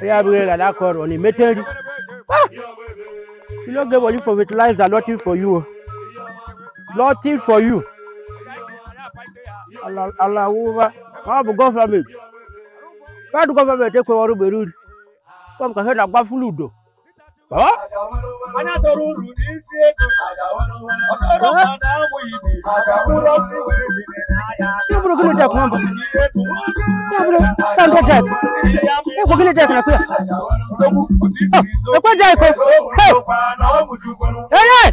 Yeah, we got that call on the metal. You don't get what you for with lives are nothing for you. Nothing for you. Allah, Allah, Allah. How about government? Why do government take over the road? Come, can hear that bad fluid. Huh? onye chọrọ uru n'isi ego ọ chọrọ mmadụ amụ ibe mkpụrụ ọsịwụ ebiri n'ahịa Ibu gini tek mamba. Ibu tan ko tek. Ibu gini tek na kuya. Oh, ko jai ko. Hey. Hey, hey.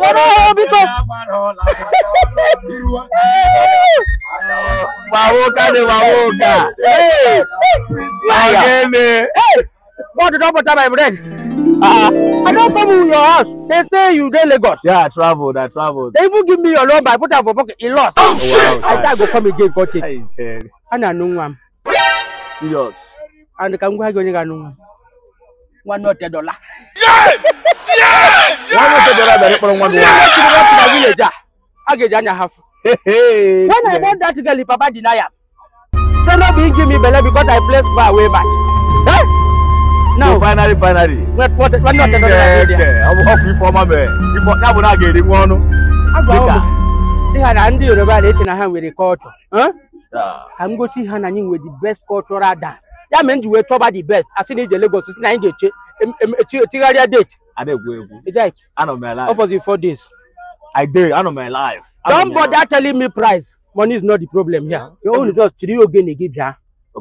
Yoro obi ko. Wawo ka de wawo ka. Hey. Ayeme. Hey. What the double time I break? I don't come to your house. They say you dey Lagos. Yeah, I traveled. I traveled. They even give me your number. I put am for pocket. He lost. Oh, oh shit. I said I go come again. Got it. And I know am. Serious. And can go ahead and know One not dollar. Yeah. Yeah. One not a dollar. They put on one dollar. Yeah. Yeah. yeah yeah yeah Janya half. When I bought that girl, Papa deny am. So no, be give me belly because I placed my way back. Huh? now finally finally ọkụ ife ọma mere ya bụ na a ga-eri nwa ọnụ si ha na ndị yoruba na-eche na ha nwere kọlchọ ka m gosi ha na anyị nwere the best cultural dance ya mere you ji wee the best asị na ije Lagos si na anyị ga-eche echigharịa date adegwu egwu my life. alive ọfọzi for this. i dey know my life. don't bother telling me price money is not the problem here You only just three ogene gị bịa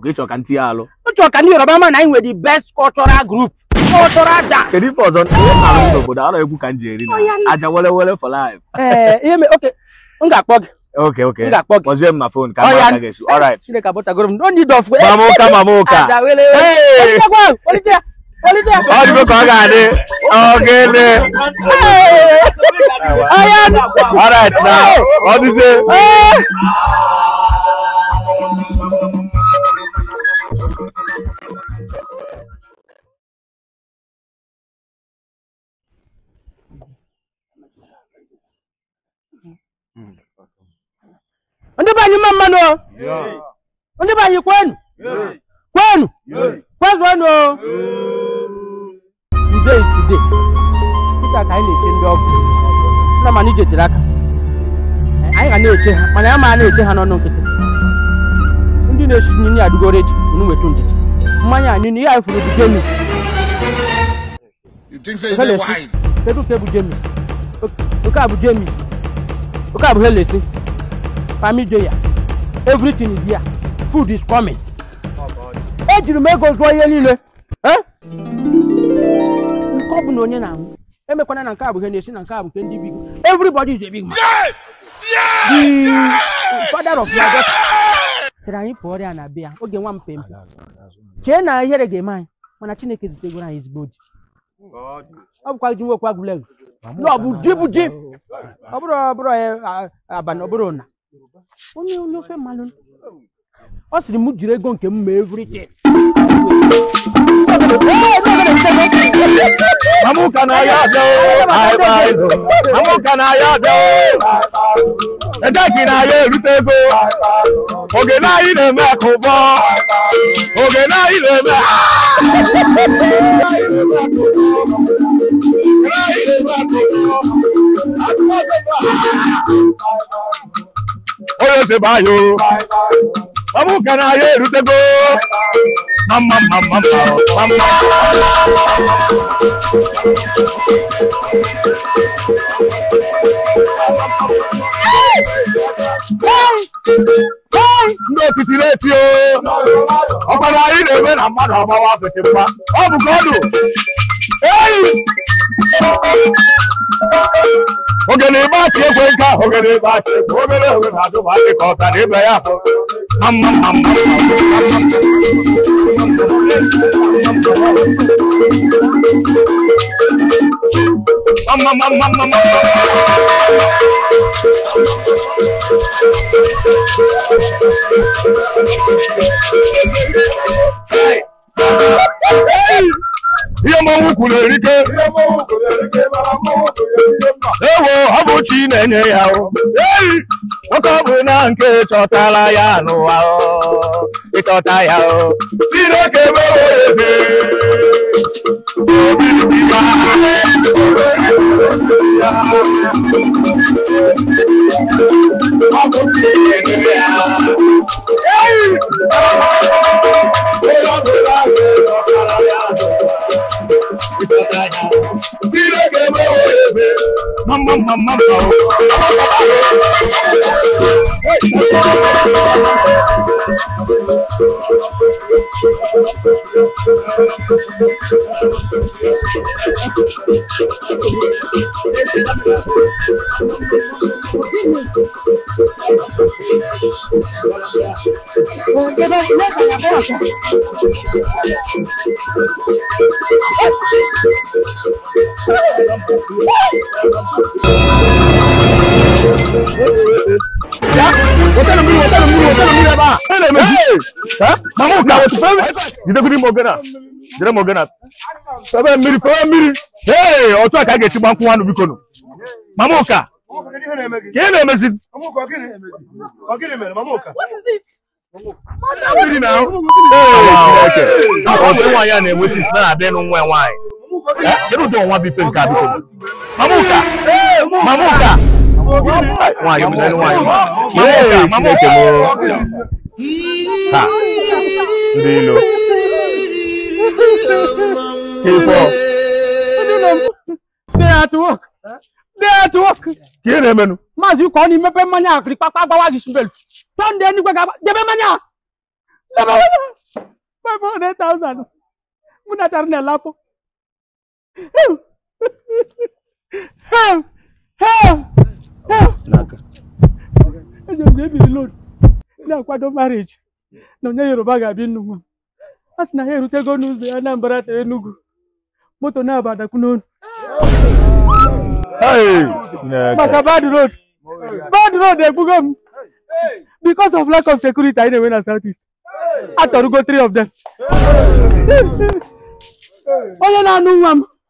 ịchọ ka ya alụ ka ndị Yoruba ma na anyị nwere the best cultural group cultural e da. kedu ife ọzọ na-arụ egwu ka m na aja wele wele for life ee ihe mee ok m ga-akpọ gị Okay, okay. Nga kpọk. Kpọzie m na phone ka m gesi. All right. Chineke m. No Ọ ga-adị. Ayan. All right Mm. ndị be anyị mma mmanụ ndị be anyị kwenu kwenu kwezuonu today today dịka ka anyị na-eche ndị ọgwụ na mana ije tere aka eh, anyị ga na-eche ha mana ya ma na-eche ha n'ọnụ nkịtị ndị na-esi nri adịgoro eji unu wetu ndidi mmanya anyị na ihe anyị furu bụ genu You think so? Is wise? kedu bụ jemi oke abụ jemi oke abụ helesi family ya everything is here food is coming ejiri m ego zụọ ihe niile nke ọ bụ na onye na-anwụ emekwana na nke a bụ ihe na-esi na nke a bụ nke ndị big everybody is a big man the father of your daughter sịrị anyị pụọ ọrịa na be ya oge nwa mpempe chee na ihere ga-eme anyị mana chineke zitegoro anyị ezigbo oji ọ bụkwa ji nwekwa egwuregwu na ọ bụ ji bụ ji ọ bụrụ ọbụrụ eh, abalị ọ bụrụ na onye onye ofe mmanụ ọ sịrị m jiri ego nke m mee evritin Amụka na ya na ya erute ego oge na na-eme akụbọ oge na na-eme yóò ṣe báyò ọmú kan ayé ìrútẹ́gó mama mama mama. ndị otiti na-eti ọkpara anyị na-eme na mmadụ agbawa apịtị mma ọ bụ ka ogene ba ti ekwe nka ogene ba ti ekwe obere oge na adụ ma adị ka ọta na ịba ya amma amma amma amma amma amma Hey! Hey! Hey! Hey! Hey! Hey! Hey! Hey! Hey! Hey! Hey! Uchi na-enye ya ei nwoke ọ bụ na nke chọtara ya n'ụwa ịchọta ya Chineke mewe eze Hey! mama mama Thank you. wotana muli wotana what is it Ọ̀sùn wọ̀nyí à na-enwesị isi na-adị n'ụwa Eh, you don't want to be paying card. Mamuka! Mamuka! Why you say why? Mamuka! Mamuka! Ha! Ndilo. Kifo. Stay at work. Stay at work. Kí ni menu? Mazi ko ni mepe manya akri papa gbawa gi sunbel. Ton de ni gbaga. Debe manya. Debe manya. 500000. Muna tarne lapo. eji ebiri load na-akwado marriage na onye yoruba ga-abịa nnukwu a sị na ha erutego n'ụzọ ya Anambra tere Enugu moto na-abadakwu n'onu maka bad road bad road egbugo m because of lack of security anyị na-enwe na Southeast atọrụgo 3 of them onye na-anụ nwa m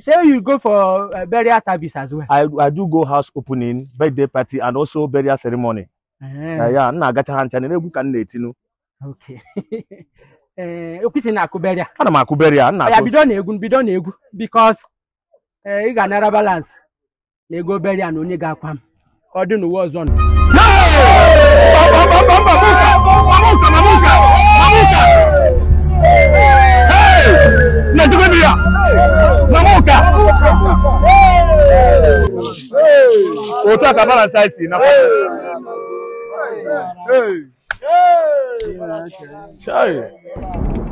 say you go for uh, burial service as well? I, I do go house opening, birthday party, and also burial ceremony. Uh -huh. uh, yeah, nna agacha ha ncha na-egwu ka m na-etinu. Okay. Okwisi na-akụ burial. Ana m akụ burial. Nna ya bido na-egwu bido na-egwu because ị ga-anara balance na ego burial na onye ga-akwa m ka ọ dị n'ụwa Hey! Na-ejugodu ya! Hey! Hey! about size in Hey! Hey! Hey!